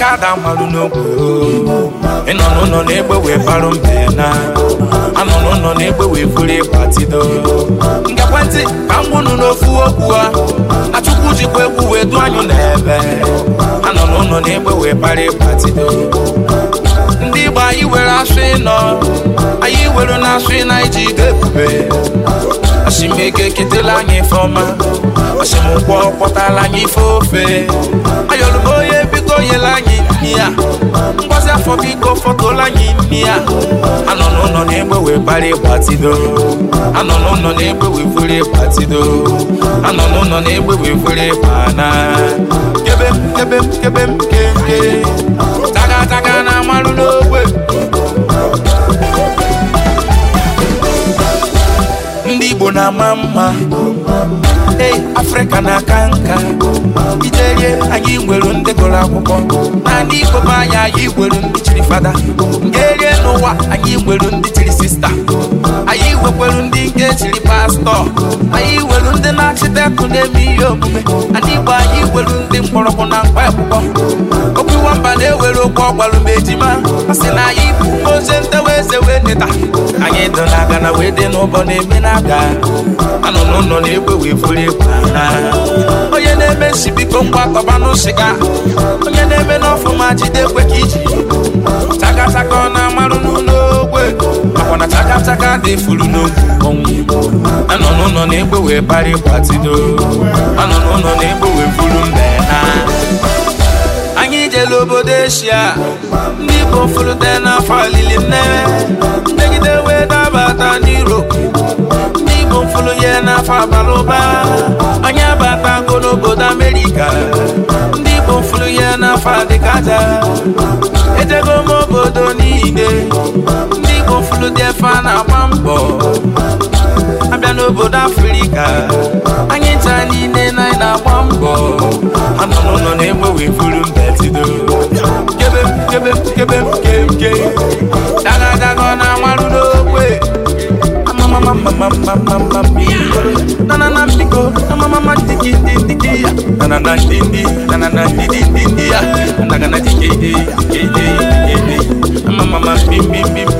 kada malụ n'ogwe ịnọ n'ụlọ na-egbe wee barụ mbe na anọ n'ụlọ na-egbe wee buru ịgbatido nke ekwentị ka m gwụnụ n'ofu okwu a achụkwu jikwa egwu wee du anyụ n'ebe anọ n'ụlọ na-egbe wee bara ịgbatido ndị Igbo anyị were asụ ịnọ anyị were na asụ ịna iji ide ebube asimego eketela anyị ife ọma asimụkwọ kpọtala anyị ife ofe ayọlụbo fọtụla anyị imi ya anọ n'ụlọ na-egbe wee anọ n'ụlọ na-egbe wee anọ n'ụlọ na-egbe wee fere ịgbana kebe m kebe m kebe na amalụ n'ogbe ndị Igbo na-ama mma ei afrịka na-aka nka iterie anyị nwere ndị gụrụ akwụkwọ na ndị ikom anyị anyị nwere ndị chiri fada nke erie n'ụwa anyị nwere ndị nwekwelu ndị nke chiri pastọ anyị welu ndị na-achịtekụ na-eme ihe omume ndị Igbo anyị welu ndị mkpọrọgwụ na mkpa akwụkwọ okwu nwamba na-ewere okwu ọgbalụ ma ejima a na anyị bụ ozi ntewa eze wee neta anyị dị na aga na wee dị n'ụbọ na-eme na aga anọ n'ụlọ na-egwe wee furu egwu onye na-eme nsi biko ngwa kọba n'ụsịga onye na-eme n'ọfụma jide kwe ka iji chakachaka ọ na-amarụ n'ụlọ Chaka dị furu n'oge ọnwụ anọ n'ụlọ na-egbe wee parị gbatido anọ n'ụlọ na-egbe wee buru mbe ha anyị jere obodo eshia ndị Igbo furute n'afọ alili nnewe mmegide wee dabata n'Europe ndị Igbo furu ya n'afọ abalị ụba anyị abatago n'obodo Amerịka ndị Igbo furu ya n'afọ adịkaja ejego obodo niile ndị gofulu dị efe a na-agba mbọ abịa n'obodo afrịka anyị taa niile na anyị na-agba mbọ anụnụnụ na-egbe wee mbetido kebe kebe kebe kemke daga na amarụ n'okwe nanana na ndidi na ndidi na me,